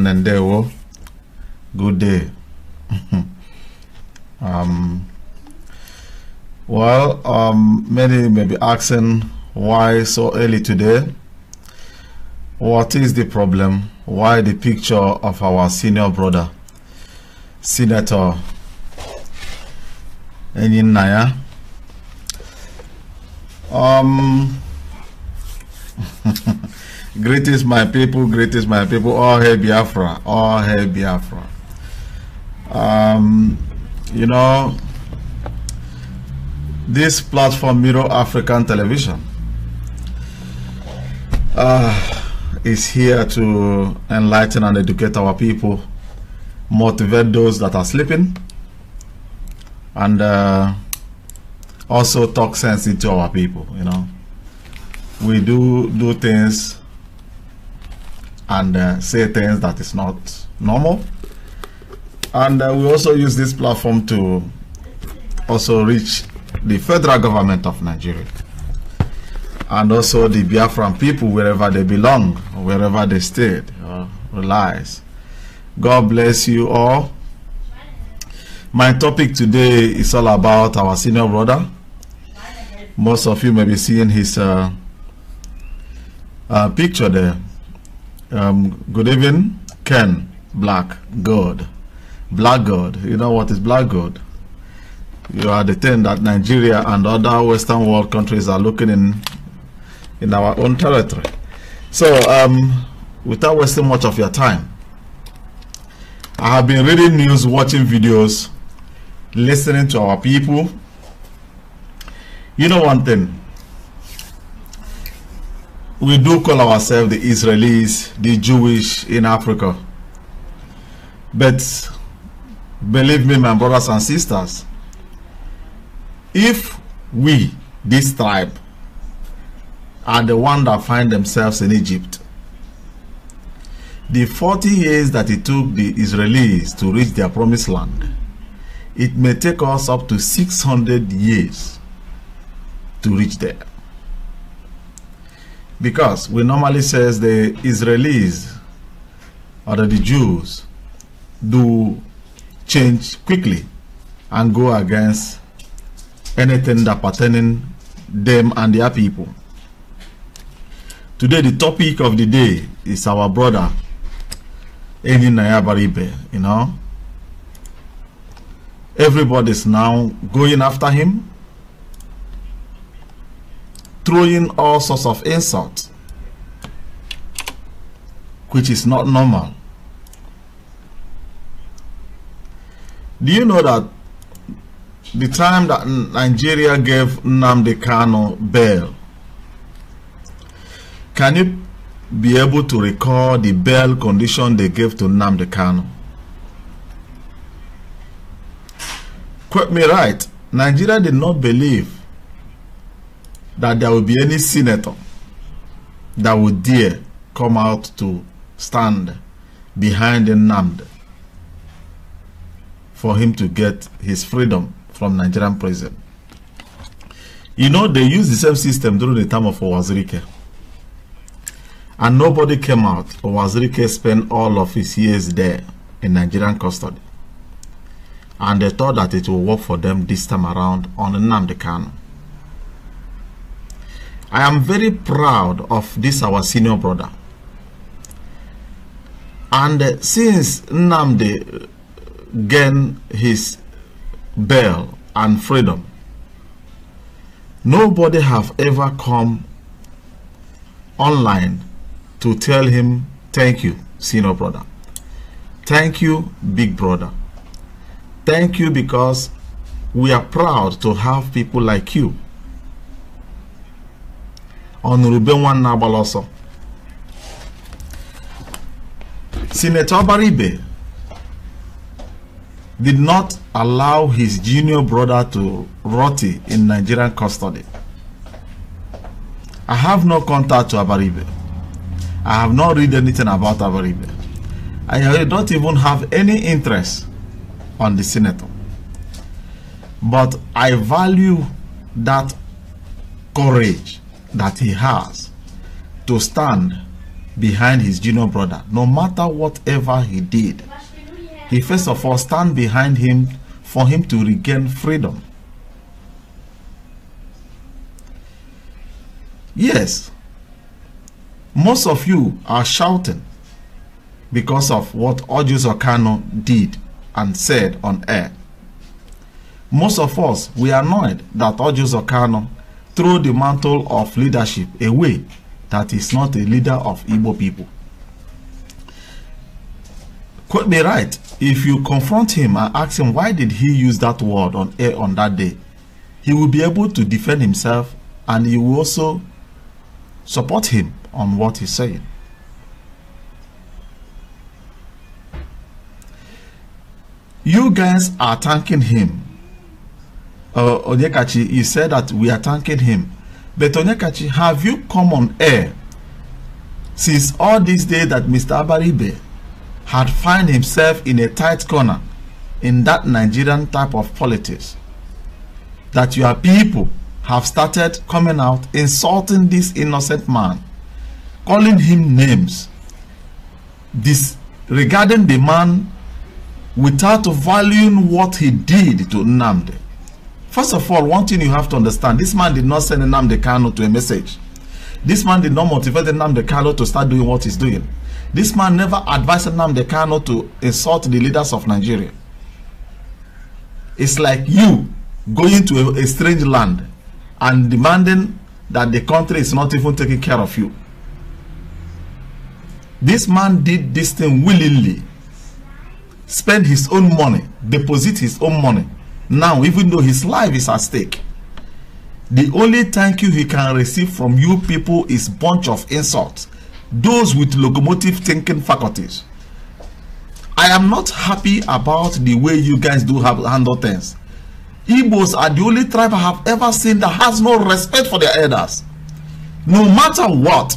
Nandewo. Good day. um, well, um, many may be asking why so early today. What is the problem? Why the picture of our senior brother, Senator Enin Naya? Um, Greetings, my people. Greetings, my people. All hail Biafra. All hail Biafra. Um, you know, this platform, Miro African Television, uh, is here to enlighten and educate our people, motivate those that are sleeping, and uh, also talk sense into our people. You know, we do do things and uh, say things that is not normal. And uh, we also use this platform to also reach the federal government of Nigeria and also the Biafran people wherever they belong, wherever they stayed or relies. God bless you all. My topic today is all about our senior brother. Most of you may be seeing his uh, uh, picture there. Um, good evening, Ken Black God. Black God. You know what is black God? You are the thing that Nigeria and other Western world countries are looking in in our own territory. So, um, without wasting much of your time, I have been reading news, watching videos, listening to our people. You know one thing, we do call ourselves the Israelis, the Jewish in Africa. But believe me, my brothers and sisters, if we, this tribe, are the one that find themselves in Egypt, the 40 years that it took the Israelis to reach their promised land, it may take us up to 600 years to reach there because we normally says the Israelis or the Jews do change quickly and go against anything that pertaining them and their people. Today the topic of the day is our brother Eni Nayabaribe, you know. Everybody's now going after him throwing all sorts of insults, which is not normal. Do you know that the time that Nigeria gave Nnamdi Kano bail, can you be able to recall the bail condition they gave to Nnamdi Kano? Quote me right, Nigeria did not believe that there will be any senator that will dare come out to stand behind Nnamdi for him to get his freedom from Nigerian prison. You know, they used the same system during the time of Owazirike. And nobody came out. Owazirike spent all of his years there in Nigerian custody. And they thought that it will work for them this time around on Nnamdi Kanu. I am very proud of this our senior brother. And uh, since Namde uh, gained his bail and freedom, nobody have ever come online to tell him thank you senior brother thank you big brother thank you because we are proud to have people like you ọ nụrụ be nwanna agbala ọsọ Senator Obaribe did not allow his junior brother to rot in Nigerian custody. I have no contact to Abaribe. I have not read anything about Abaribe. I don't even have any interest on the senator. But I value that courage that he has to stand behind his junior brother, no matter whatever he did. He first of all stand behind him for him to regain freedom. Yes, most of you are shouting because of what Audius Okano did and said on air. Most of us, we are annoyed that Audius Okano throw the mantle of leadership away that is not a leader of Igbo people. Quote me right, if you confront him and ask him why did he use that word on air on that day, he will be able to defend himself and you will also support him on what he's saying. You guys are thanking him uh, Onyekachi, he said that we are thanking him. But Onyekachi, have you come on air since all this day that Mr. Abaribe had found himself in a tight corner in that Nigerian type of politics? That your people have started coming out insulting this innocent man, calling him names, regarding the man without valuing what he did to Namde. First of all, one thing you have to understand, this man did not send Nnamdi Kano to a message. This man did not motivate Nnamdi Kano to start doing what he's doing. This man never advised Nnamdi Kano to insult the leaders of Nigeria. It's like you going to a, a strange land and demanding that the country is not even taking care of you. This man did this thing willingly. Spend his own money, deposit his own money now even though his life is at stake the only thank you he can receive from you people is bunch of insults those with locomotive thinking faculties i am not happy about the way you guys do have handle things Igbos are the only tribe I have ever seen that has no respect for their elders. No matter what.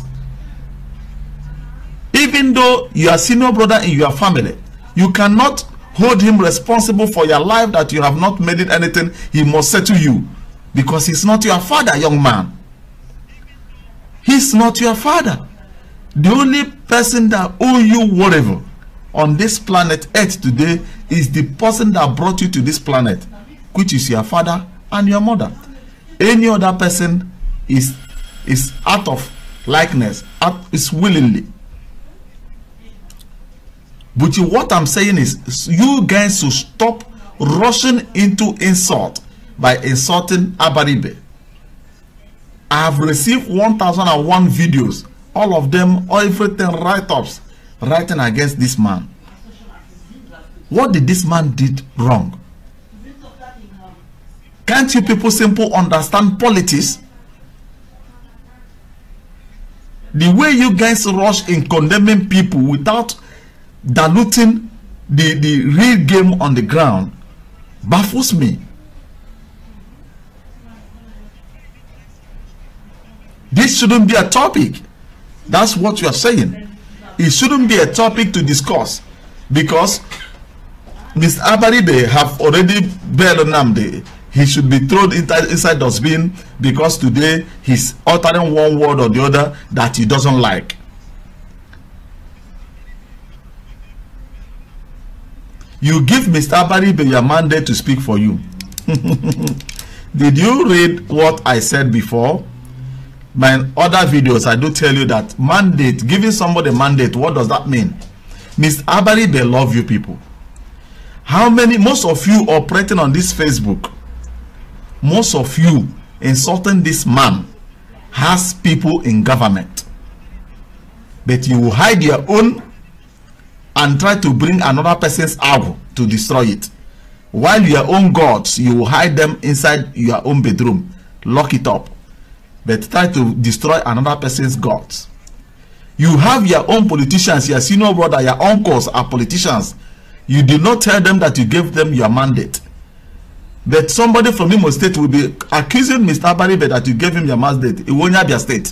Even though you are senior brother in your family, you cannot hold him responsible for your life that you have not made it anything he must say to you because he's not your father young man he's not your father the only person that owe you whatever on this planet earth today is the person that brought you to this planet which is your father and your mother any other person is is out of likeness out, is willingly But you, what I'm saying is, you guys should stop rushing into insult by insulting Abaribe. I have received 1001 videos, all of them, everything write-ups, writing against this man. What did this man did wrong? Can't you people simple understand politics? The way you guys rush in condemning people without diluting the, the real game on the ground baffles me. This shouldn't be a topic. That's what you are saying. It shouldn't be a topic to discuss because Mr. Abaribe have already bailed Namde. He should be thrown inside, inside the bin because today he's uttering one word or the other that he doesn't like. You give Mr. Abari your mandate to speak for you. Did you read what I said before? My other videos, I do tell you that mandate, giving somebody mandate, what does that mean? Mr. Abari, they love you people. How many, most of you operating on this Facebook, most of you insulting this man has people in government. But you hide your own and try to bring another person's arrow to destroy it while your own gods you will hide them inside your own bedroom lock it up but try to destroy another person's gods you have your own politicians your senior brother your uncles are politicians you did not tell them that you gave them your mandate That somebody from Imo State will be accusing Mr. Baribe that you gave him your mandate It Iwonya Abia State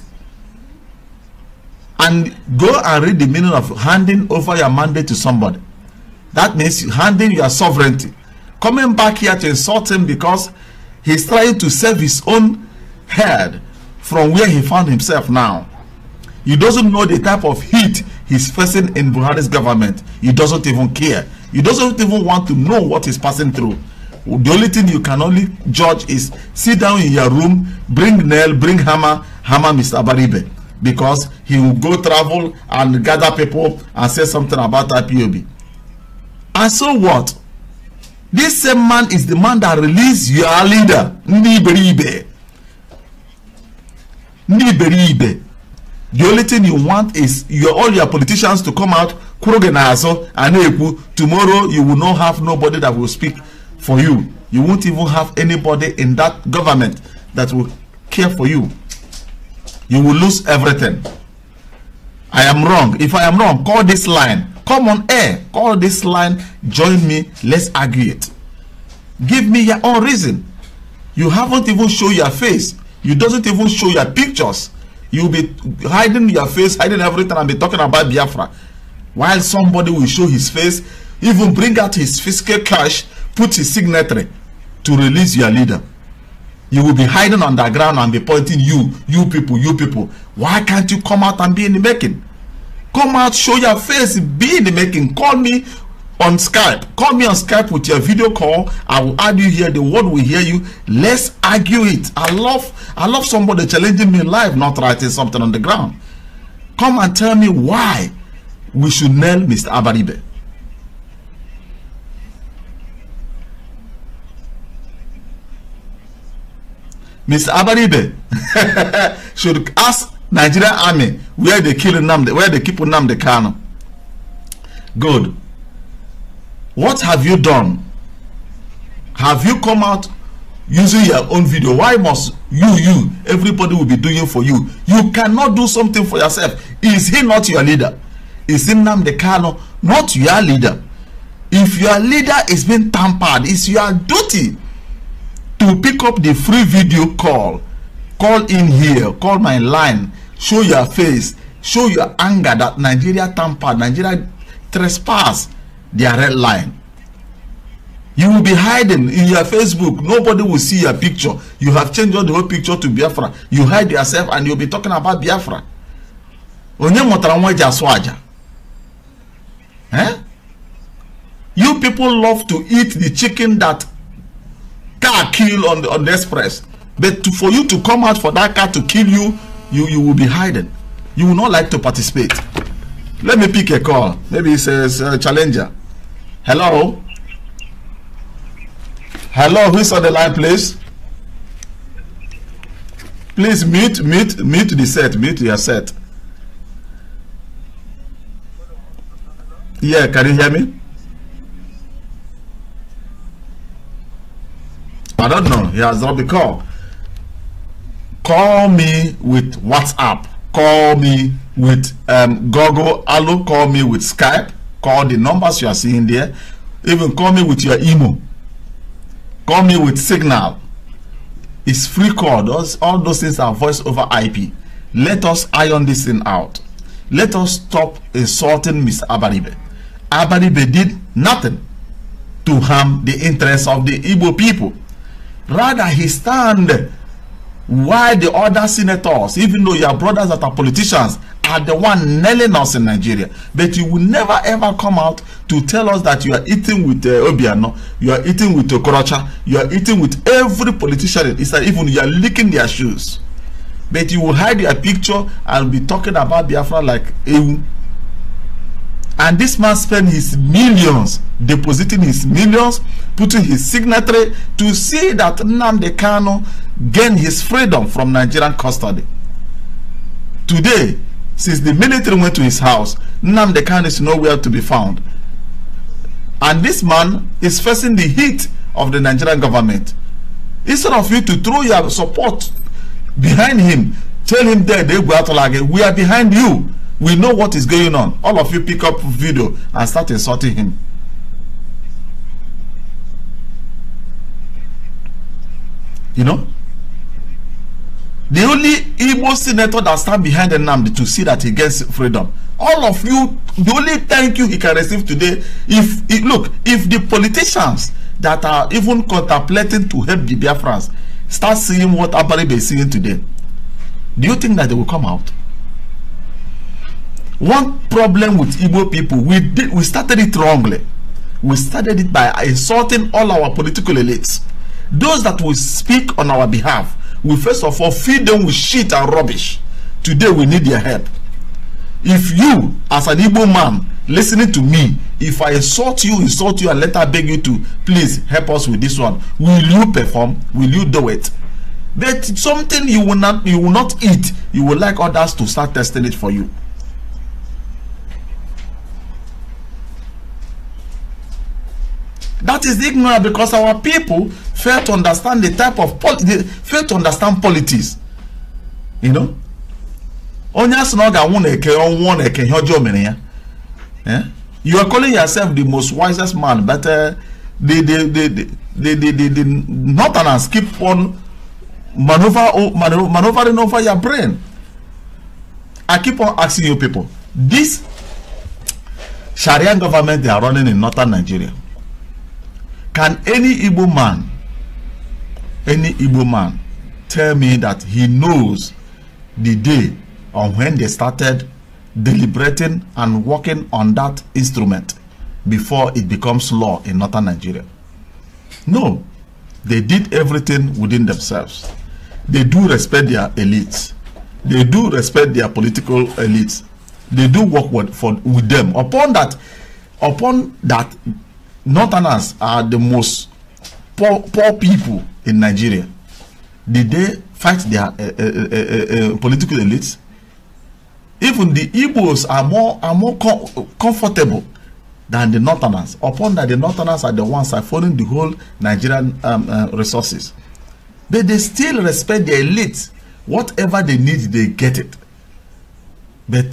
and go and read the meaning of handing over your mandate to somebody. That means handing your sovereignty. Coming back here to insult him because he's trying to save his own head from where he found himself now. He doesn't know the type of heat he's facing in Buhari's government. He doesn't even care. He doesn't even want to know what he's passing through. The only thing you can only judge is sit down in your room, bring nail, bring hammer, hammer Mr. Baribe. because he will go travel and gather people and say something about IPOB. And so what? This same man is the man that released your leader, Nibiribe. Nibiribe. The only thing you want is your, all your politicians to come out, Kurogenazo, Aneku. Tomorrow you will not have nobody that will speak for you. You won't even have anybody in that government that will care for you you will lose everything. I am wrong. If I am wrong, call this line. Come on air. Call this line. Join me. Let's argue it. Give me your own reason. You haven't even show your face. You doesn't even show your pictures. You'll be hiding your face, hiding everything, and be talking about Biafra. While somebody will show his face, even bring out his fiscal cash, put his signature to release your leader. You will be hiding underground and be pointing you, you people, you people. Why can't you come out and be in the making? Come out, show your face, be in the making. Call me on Skype. Call me on Skype with your video call. I will add you here. The world will hear you. Let's argue it. I love I love somebody challenging me live, not writing something on the ground. Come and tell me why we should nail Mr. Abaribe. Ms. Abaribe should ask Nigerian army where they kill Namde, where they keep Namde Kano. Good. What have you done? Have you come out using your own video? Why must you, you, everybody will be doing for you? You cannot do something for yourself. Is he not your leader? Is he Namde Kano not your leader? If your leader is being tampered, it's your duty to pick up the free video call call in here call my line show your face show your anger that nigeria tamper nigeria trespass their red line you will be hiding in your facebook nobody will see your picture you have changed all the whole picture to biafra you hide yourself and you'll be talking about biafra onye mụtara nwa eji asụ aja eh? you people love to eat the chicken that car kill on the on the express but to, for you to come out for that car to kill you you you will be hiding you will not like to participate let me pick a call maybe it says a challenger hello hello who's on the line please please meet meet meet the set Meet your set yeah can you hear me I don't know. He has not been call. Call me with WhatsApp. Call me with um, Google Hello. Call me with Skype. Call the numbers you are seeing there. Even call me with your email. Call me with Signal. It's free call. Those, all those things are voice over IP. Let us iron this thing out. Let us stop insulting Mr. Abaribe. Abaribe did nothing to harm the interests of the Igbo people. Rather, he stand why the other senators, even though your brothers that are politicians, are the one nailing us in Nigeria. But you will never ever come out to tell us that you are eating with uh, Obiano, you are eating with Okorocha, you are eating with every politician. It's like even you are licking their shoes. But you will hide your picture and be talking about Biafra like Ewu. And this man spent his millions, depositing his millions, putting his signature to see that Nnamdi Kano gained his freedom from Nigerian custody. Today, since the military went to his house, Nnamdi Kano is nowhere to be found. And this man is facing the heat of the Nigerian government. Instead of you to throw your support behind him, tell him that they like we are behind you. We know what is going on. All of you pick up video and start insulting him. You know? The only Igbo senator that stand behind Nnamdi to see that he gets freedom. All of you, the only thank you he can receive today, if, look, if the politicians that are even contemplating to help the Biafrans start seeing what Abaribe is seeing today, do you think that they will come out? one problem with Igbo people we did we started it wrongly we started it by insulting all our political elites those that will speak on our behalf we first of all feed them with shit and rubbish today we need their help if you as an Igbo man listening to me if I insult you insult you and later beg you to please help us with this one will you perform will you do it but something you will not you will not eat you will like others to start testing it for you That is ignorant because our people fail to understand the type of poli fail to understand politics. You know? Onye asị won eke ọnwụọ na eke ihe ọjọọ ya. Eh? You are calling yourself the most wisest man but uh, the, the, the, the, the, the, the, the northerners keep on maneuver, maneuver, maneuvering over your brain. I keep on asking you people, this Sharia government they are running in northern Nigeria Can any Igbo man, any Igbo man, tell me that he knows the day on when they started deliberating and working on that instrument before it becomes law in northern Nigeria? No, they did everything within themselves. They do respect their elites. They do respect their political elites. They do work with, for, with them. Upon that, upon that Northerners are the most poor, poor people in Nigeria. Did they fight their uh, uh, uh, political elites? Even the Igbos are more are more com comfortable than the Northerners. Upon that, the Northerners are the ones siphonning the whole Nigerian um, resources. But they still respect the elite. Whatever they need, they get it. But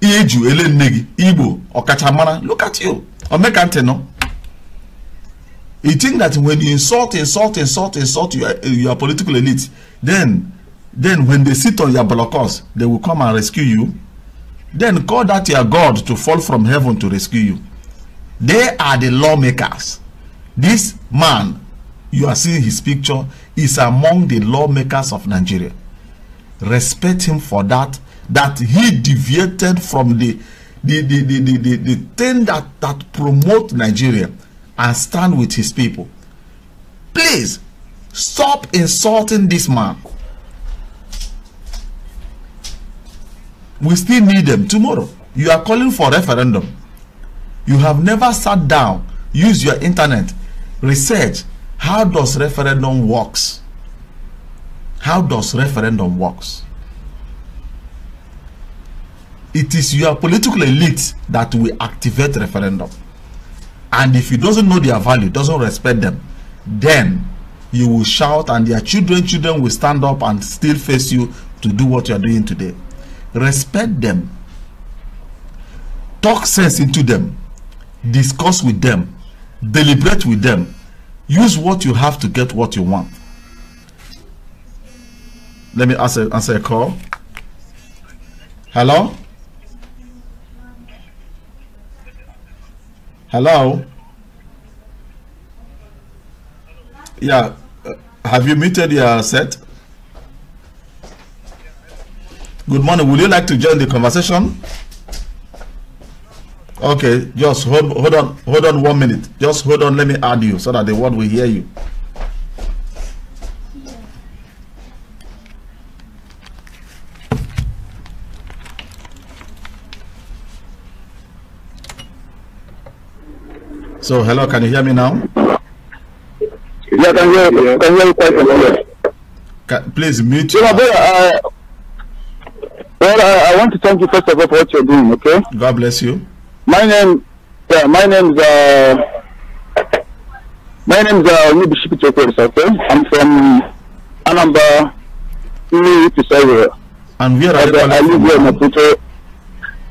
Eju, Elenegi, Igbo, Okachamara, look at you. Omekante, no? You think that when you insult, insult, insult, insult your, your political elite, then, then when they sit on your blockers, they will come and rescue you. Then call that your God to fall from heaven to rescue you. They are the lawmakers. This man, you are seeing his picture, is among the lawmakers of Nigeria. Respect him for that, that he deviated from the, the, the, the, the, the, the thing that, that promote Nigeria and stand with his people. Please stop insulting this man. We still need them tomorrow. You are calling for referendum. You have never sat down, use your internet, research how does referendum works. How does referendum works? It is your political elite that will activate referendum. And if you doesn't know their value, doesn't respect them, then you will shout and their children children will stand up and still face you to do what you are doing today respect them talk sense into them discuss with them deliberate with them use what you have to get what you want let me answer answer a call hello Hello? Yeah. Uh, have you muted your set? Good morning. Would you like to join the conversation? Okay, just hold hold on hold on one minute. Just hold on. Let me add you so that the world will hear you. So, hello, can you hear me now? Yeah, can hear you. Can hear you quite well. Can, please mute. Yeah, but, uh, well, I, I, want to thank you first of all for what you're doing. Okay. God bless you. My name, yeah, my name's uh, my name's uh, Nibishi Chokers. Okay, I'm from Anambra, Nigeria. And where are you I, I live here in Maputo.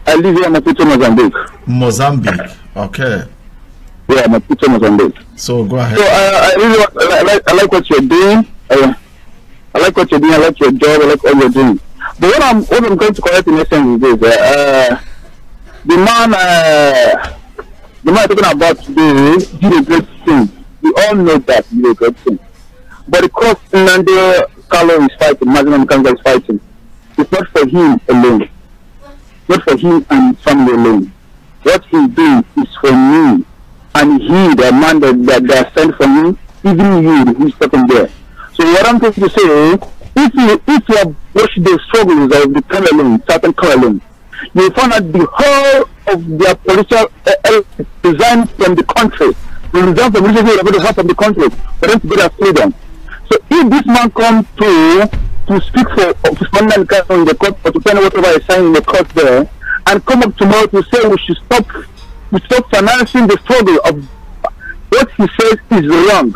I live here in Maputo, Mozambique. Mozambique. Okay. Yeah, my on this. So go ahead. So I, uh, I really I like, I like what you're doing. I, uh, I like what you're doing. I like your job. I like all you're doing. But what I'm what I'm going to correct in essence is this: uh, uh the man uh, the man talking about today did a great thing. We all know that he did a great thing. But the cost Nando Carlo is fighting, Maximum Kanza is fighting. It's not for him alone. Not for him and family alone. What he's doing is for me and he, the man that, that they are sent from him, even you who's sitting there. So what I'm trying to say, if you if you have watched the struggles of the Cameroon, certain Cameroon, you will find that the whole of their political uh, design from the country, the design from religious are the to have from the country for them to get their freedom. So if this man comes to to speak for Usman in the court or to tell whatever he's saying in the court there, and come up tomorrow to say we should stop we stop financing the struggle of what he says is wrong.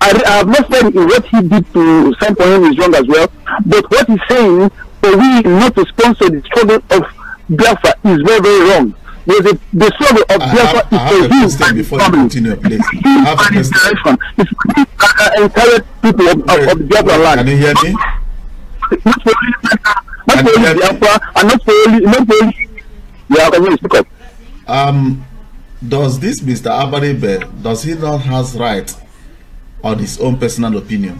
I, I have not said what he did to some point is wrong as well, but what he's saying for we not to sponsor the struggle of Biafra is very, very wrong. There's a, the struggle of I Biafra have, is for him Before you continue, Please. I have a question. direction. It's entire people of, Wait, of, of Biafra land. Can you hear me? Not for only Biafra, and not for only, not for only, yeah, can you speak up? Um, does this Mr. Abari does he not has right on his own personal opinion?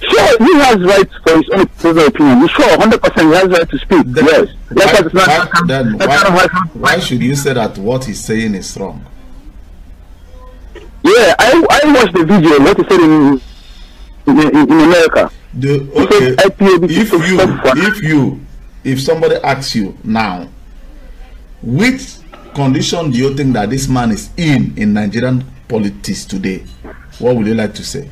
Sure, he has right for his own personal opinion. Sure, 100% he has right to speak. Then, yes. Why, like why, then why, why should you say that what he's saying is wrong? Yeah, I, I watched the video, what he said in, in, in America. The, okay, if you, if you, if somebody asks you now, which condition do you think that this man is in in Nigerian politics today? What would you like to say?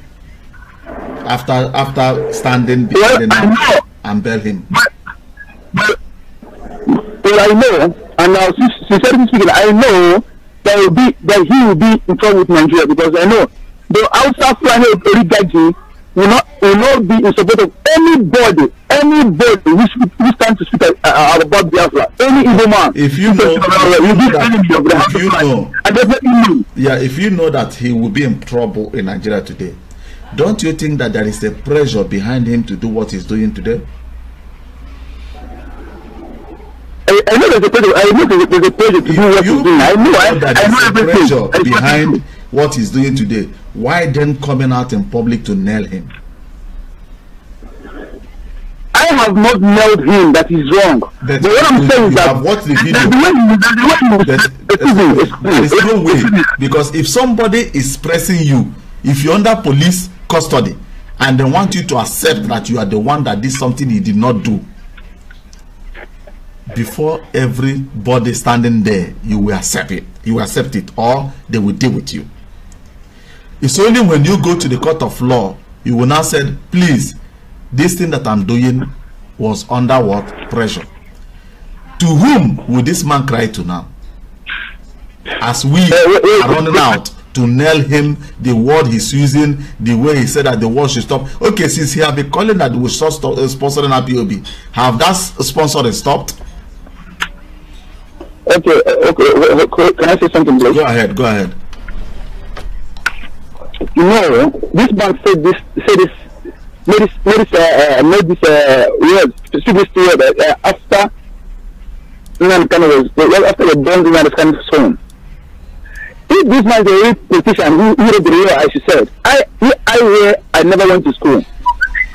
After after standing behind well, him and bail him. But, but, well, I know, and now sincerely speaking, I know that will be that he will be in trouble with Nigeria because I know the outside flying Origaji will not will not be in support of anybody anybody who who stands to speak uh, uh, about Biafra any evil man. If you know, uh, if you know, I definitely know. Yeah, if you know that he will be in trouble in Nigeria today, don't you think that there is a pressure behind him to do what he's doing today? I, I know there's a pressure. I know there's a pressure to if do what he's doing. I know. I, I know everything. Pressure behind. what he's doing today, why then coming out in public to nail him? I have not nailed him. That is wrong. That but what I'm saying is that what the video. That, that is no way because if somebody is pressing you, if you're under police custody, and they want you to accept that you are the one that did something he did not do, before everybody standing there, you will accept it. You accept it, or they will deal with you. It's only when you go to the court of law, you will now say, please, this thing that I'm doing was under what pressure? To whom will this man cry to now? As we are running out to nail him, the word he's using, the way he said that the word should stop. Okay, since he have been calling that we should stop uh, sponsoring POB, have that sponsor stopped? Okay, uh, okay, can I say something, please? Go ahead, go ahead. No, this bank said this, said this, made this, made this, uh, uh made this, uh, word, specific word, uh, uh after Iran Khan was, well, after the bomb this kind of home. If this man is a real politician who, who read the real. as you said, I, I were, I never went to school.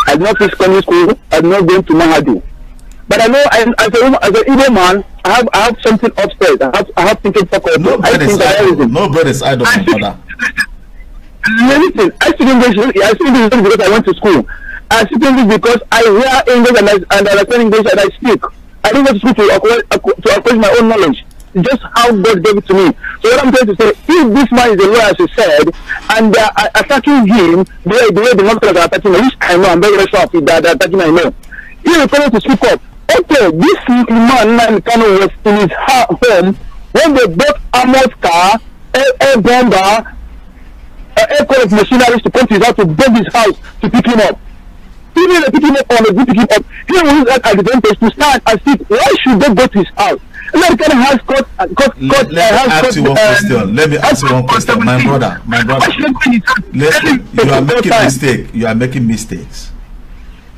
I did not finish secondary school, I did not go to Mahadu. But I know, I, as a as an Igbo man, I have, I have something upstairs. I have, I have something for no, I think I idol. No bread is idle, father. listen, I speak English. I speak English because I went to school. I speak English because I hear English and I, and I understand English and I speak. I didn't go to school to acquire, to acquire my own knowledge. Just how God gave it to me. So what I'm trying to say, if this man is a lawyer, as you said, and they are attacking him the way the, way the monsters are attacking him, which I know, I'm very, sure of it, that they're attacking my male. He refuses to speak up. Okay, this man, man Kano was in his home when they bought Amos car, a, a bomber, uh, aircraft machinery to come to his house to bring his house to pick him up. Even if they pick him up on a good pick him up, he will use that advantage to stand and see why should they go to his house. American has got uh, got got. Let, let uh, me ask got, you one uh, question. Let me ask you one question, my brother, my brother. Let, you are making mistake. You are making mistakes.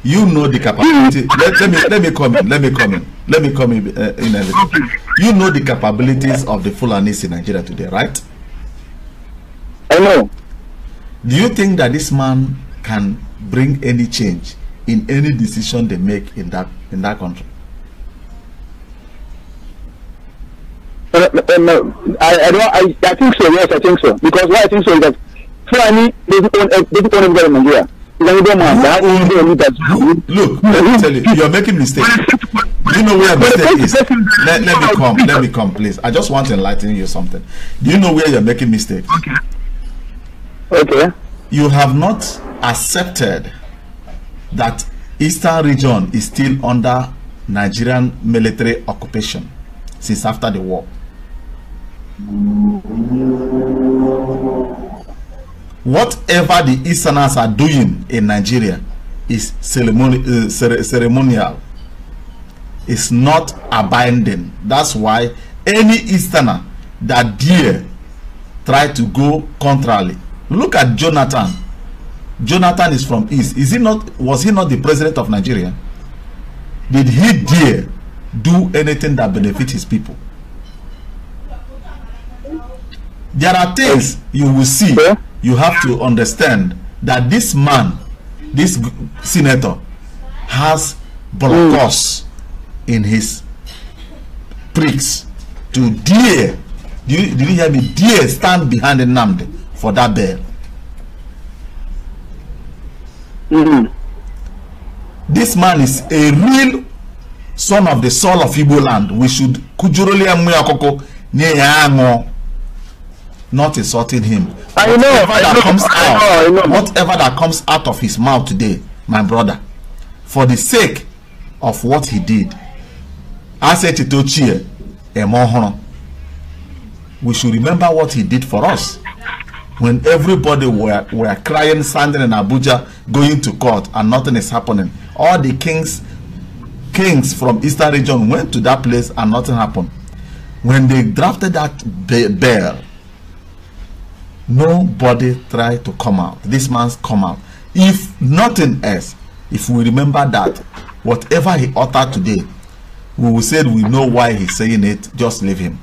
You know the capability. let, let me let me come in. Let me come in. Let me come in. Uh, in everything. You know the capabilities of the Fulanis in Nigeria today, right? I know. Do you think that this man can bring any change in any decision they make in that in that country? Uh, uh, uh, I, I don't. I, I think so. Yes, I think so. Because why I think so is that Fulani doesn't own doesn't own in Nigeria. Look, let me tell you, you're making mistakes. Do you know where your mistake is? Let, let me come. Let me come, please. I just want to enlighten you something. Do you know where you're making mistakes? Okay. Okay. You have not accepted that Eastern region is still under Nigerian military occupation since after the war. Whatever the Easterners are doing in Nigeria is ceremoni uh, cere ceremonial. It's not abiding. That's why any Easterner that dare try to go contrarily Look at Jonathan. Jonathan is from East. Is he not? Was he not the president of Nigeria? Did he dare do anything that benefit his people? There are things you will see. You have to understand that this man, this senator, has blocos in his pricks to dare. Do you, did you hear me? Dare stand behind the Namde for that bell. Mm. Mm-hmm. This man is a real son of the soul of Igbo land. We should kujuroli emu akoko nye not insulting him. I whatever know, that know, comes I know, out, I know. whatever that comes out of his mouth today, my brother, for the sake of what he did, I said to Tochie, we should remember what he did for us. when everybody were, were crying, standing in Abuja, going to court, and nothing is happening. All the kings, kings from Eastern region went to that place and nothing happened. When they drafted that bill, nobody tried to come out. This man's come out. If nothing else, if we remember that, whatever he uttered today, we will say we know why he's saying it, just leave him.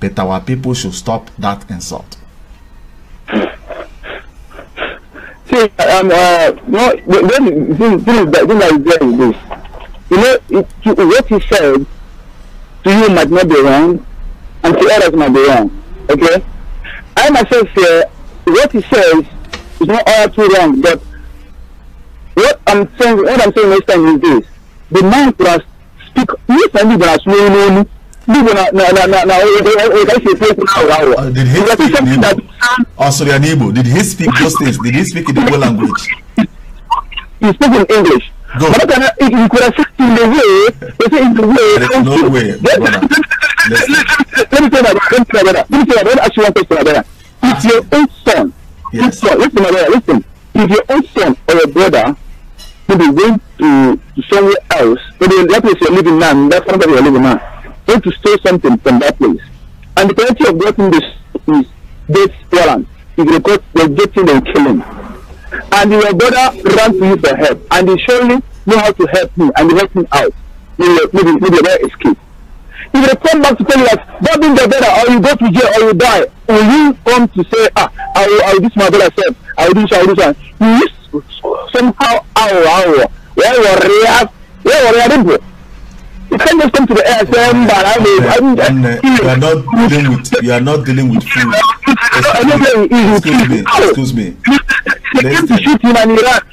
But our people should stop that insult. See, um, uh, no, then, this, this, is, then I is this. You know, it, what he said to you might not be wrong, and to others might be wrong. Okay? I myself say what he says is not all too wrong, but what I'm saying, what I'm saying next time is this: the man who has speak, you yes, no mean, Igbo na na na na Did he speak in Igbo? Oh, sorry, in Did he speak those things? Did he speak in Igbo language? He spoke in English. Good. But then he could have said in the way, he said in the way. There is no way, Let me tell you about that. Let me tell you about that. Let me ask you one question about that. If your own son, yes. listen, listen, listen. If your own son or your brother maybe going to, to somewhere else, maybe that place you're living now, that's not where you're living now, going to steal something from that place. And the penalty of getting this is death warrant. If they got they're getting and killing. And your brother ran to you for help and he surely know how to help me and he helped me out. Maybe maybe maybe escape. If they come back to tell you that that being the better, or you go to jail or you die, will you come to say, Ah, I will I will this my brother said, I will do this, I will do this you somehow ow ow where you react where you react you can't just come to the air and say mbara me. You are not dealing with you are not dealing with food. Excuse me. Excuse me. Excuse me.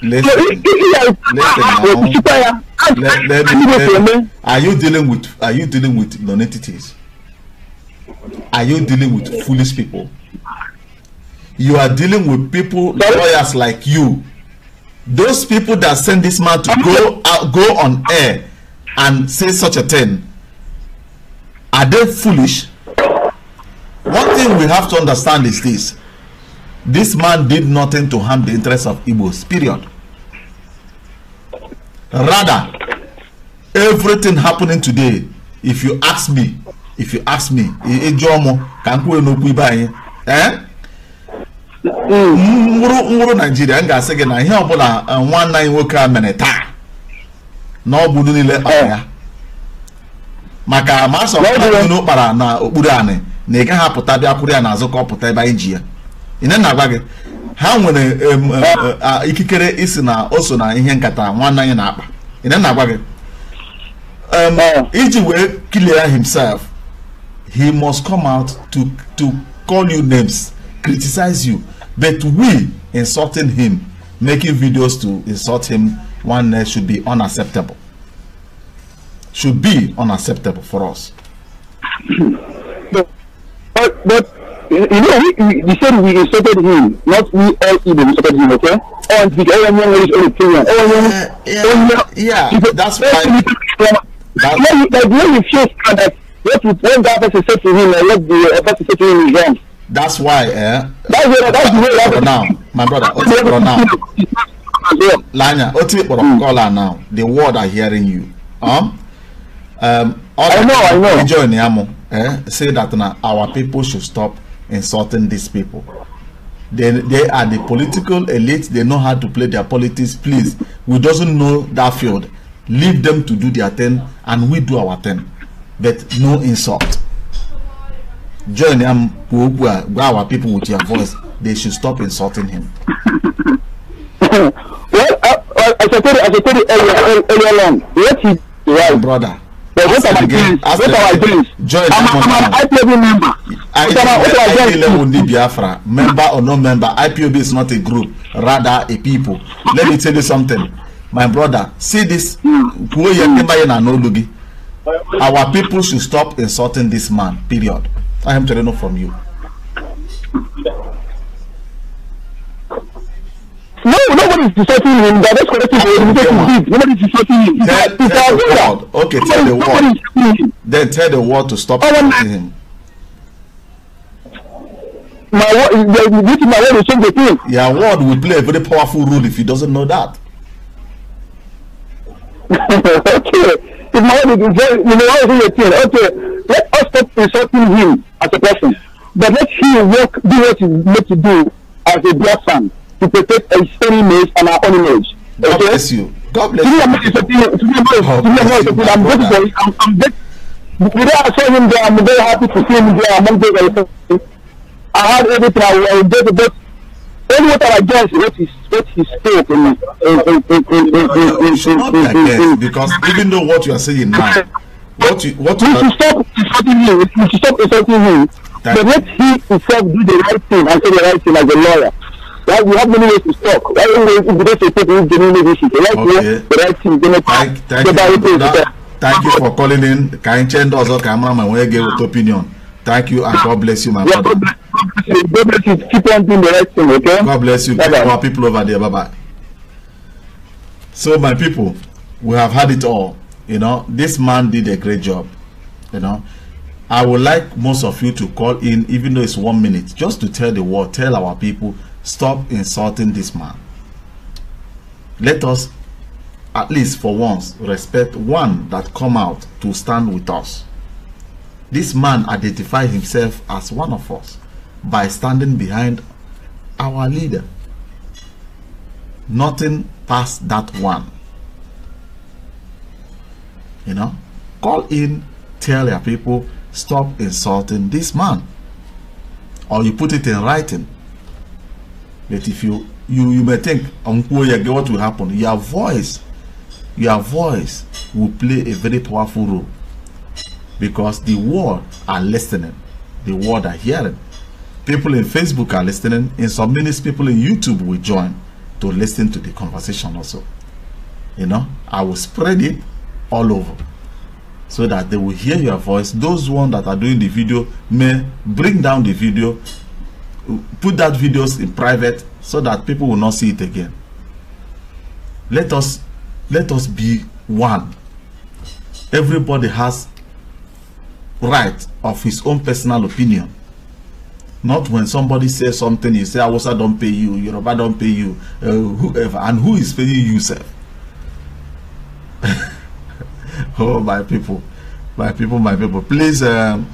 Listen. Listen. Listen. Now. Let, let me, let me. Are you dealing with are you dealing with non-entities? Are you dealing with foolish people? You are dealing with people lawyers like you. Those people that send this man to go out, go on air and say such a thing, are they foolish? One thing we have to understand is this. This man did nothing to harm the interests of Igbos, period. Rather, everything happening today, if you ask me, if you ask me, Ejomo, Kankwe no Kuibaye, eh? Ngwuru Nigeria, m ga-asị gị na ihe ọbụla nwanne anyị nwoke a mere taa na ọ bụ unu niile kpara ya maka ma asọ unu kpara na okpuru anị na ị gaghị bịa kwụrụ ya n'azụ ka ọ pụta ebe anyị ji ya ị na-agwa gị ha nwere ikikere isi na o so na ihe nkata nwanne anyị na-akpa ị na-agwa gị iji wee clear himself he must come out to to call you names criticize you but we insulting him making videos to insult him one nurse should be unacceptable. Should be unacceptable for us. But, but, but you know, we, we, we said we insulted him, not we all even insulted him, okay? And the only one who is only opinion. Everyone, yeah, yeah, yeah. yeah. That's why. That's when, like when you feel that what when that person said to him, and what the person said to him is wrong. That's why, eh? That's, that's, that's the way. That's Now, my brother, for now. Lanya, Lanya, Oti Borokola now, the world are hearing you. Um, Um, all I know, I know. Join Yamo, eh, say that now our people should stop insulting these people. They, they are the political elite. They know how to play their politics. Please, we doesn't know that field. Leave them to do their thing, and we do our thing. But no insult. Join Yamo, our people with your voice. They should stop insulting him. aseteri aseteri earlier, eyo long wetin dey right. brother but with our dreams with our dreams i'm i'm an ipob member with our with our dreams. level ni biafra member or no member ipob is not a group rather a people let me tell you something my brother see this Who yẹ kí n bá our people should stop insulting this man period i am telling you from you. God is deserting him. That is correcting the organization did. Nobody is deserting him. Tell, tell, tell the world. Okay, tell the world. Then tell the world to stop deserting him. My word, this is my word will change the thing. Yeah, word will play a very powerful role if he doesn't know that. okay. If my word is very, you know, what is the thing? Okay, let us stop insulting him as a person, but let him work, do what he needs to do as a black son to protect a stony image and our own image. God okay? bless you. God bless you. I'm grateful. I'm, I'm grateful. Today I am very happy to see him there among those I I had everything I wanted, but only what I guess what he what he spoke in because even though what you are saying now, what you what you we should stop insulting him. We should stop insulting him. But let he himself do the right thing and say the right thing as a lawyer. Right? We have many ways to talk. Why right? we don't say people who genuinely wish it? They the right thing. They like thank, thank, you, that, thank you for calling in. Kind Chen does all cameraman when you give your opinion. Thank you and God bless you, my brother. God bless you. God bless you. Keep on doing the right thing, okay? God bless you. Bye -bye. Our people over there. Bye bye. So, my people, we have had it all. You know, this man did a great job. You know, I would like most of you to call in, even though it's one minute, just to tell the world, tell our people stop insulting this man. Let us, at least for once, respect one that come out to stand with us. This man identified himself as one of us by standing behind our leader. Nothing past that one. You know, call in, tell your people, stop insulting this man. Or you put it in writing But if you you you may think Nkoyege what will happen your voice your voice will play a very powerful role because the world are listening the world are hearing people in Facebook are listening in some minutes people in YouTube will join to listen to the conversation also you know I will spread it all over so that they will hear your voice those one that are doing the video may bring down the video put that videos in private so that people will not see it again let us let us be one everybody has right of his own personal opinion not when somebody says something you say I don't pay you yoruba not pay you uh, whoever and who is paying you sir? oh my people my people my people please um,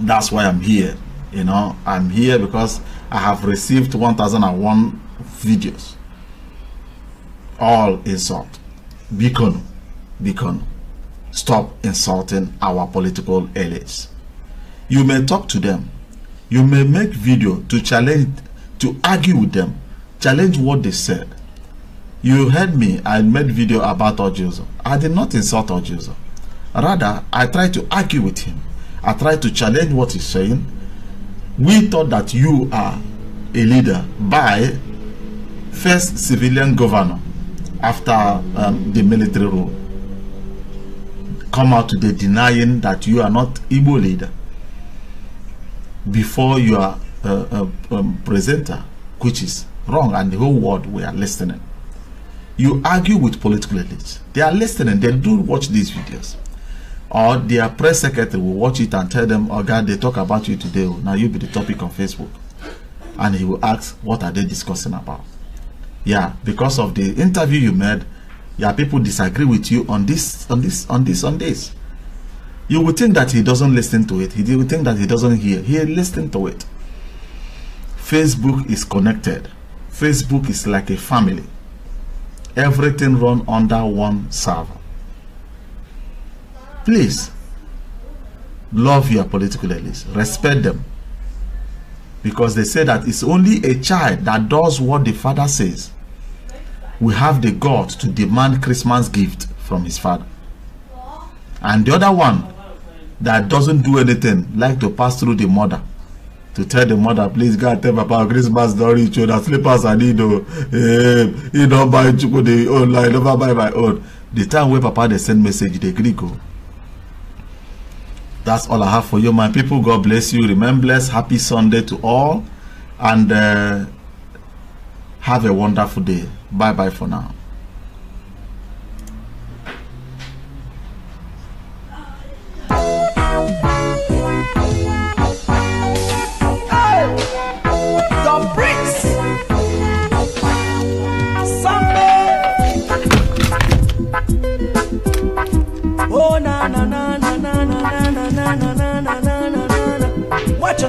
that's why i'm here you know i'm here because i have received 1001 videos all insult beacon beacon stop insulting our political elites you may talk to them you may make video to challenge to argue with them challenge what they said you heard me i made video about ojuzo i did not insult ojuzo rather i tried to argue with him i tried to challenge what he's saying we thought that you are a leader by first civilian governor after um, the military rule come out today denying that you are not Igbo leader before you are a, presenter, which is wrong, and the whole world we are listening. You argue with political elites. They are listening. They do watch these videos or their press secretary will watch it and tell them, oh God, they talk about you today. Now you be the topic on Facebook. And he will ask, what are they discussing about? Yeah, because of the interview you made, yeah, people disagree with you on this, on this, on this, on this. You would think that he doesn't listen to it. He would think that he doesn't hear. He listen to it. Facebook is connected. Facebook is like a family. Everything run under one server Please love your political elites, respect them. Because they say that it's only a child that does what the father says. We have the God to demand Christmas gift from his father. And the other one that doesn't do anything, like to pass through the mother to tell the mother, please God tell Papa Christmas don't reach you, that slippers I need to you don't buy you the online like never buy my own. The time where Papa they send message, they agree go. That's all I have for you, my people. God bless you. Remember, bless. Happy Sunday to all. And uh, have a wonderful day. Bye bye for now.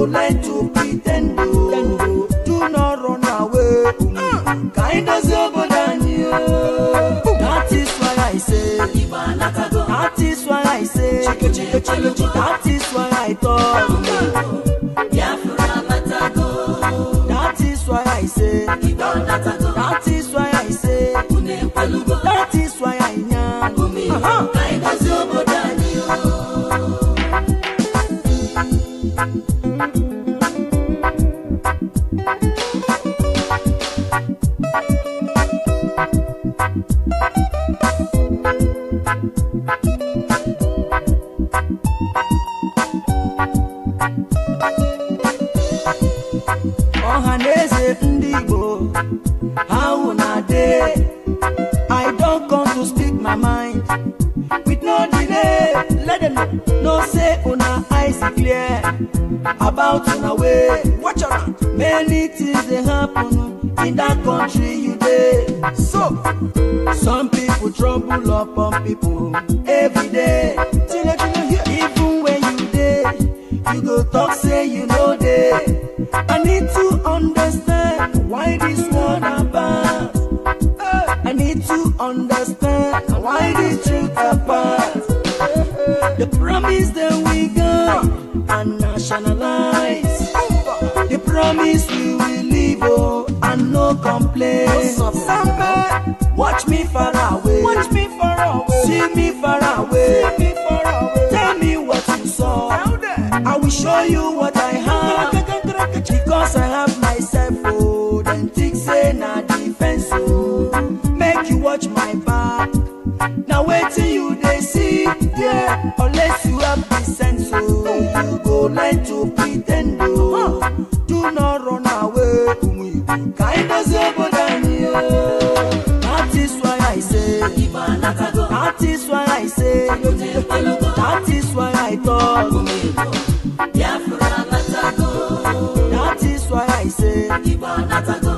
to nine to understand why the truth apart the promise that we got and nationalize the promise we will live oh and no complaints. Watch me far away. Watch me far away. See me far away. See me far away. Tell me what you saw. I will show you what I have. wetin you dey see there unless you have the sense o oh, you go learn to pre ten d o oh. do not run away umu ibu ka ino si obodo anyi o that is why i say that is why i say that is why i talk that is why i say.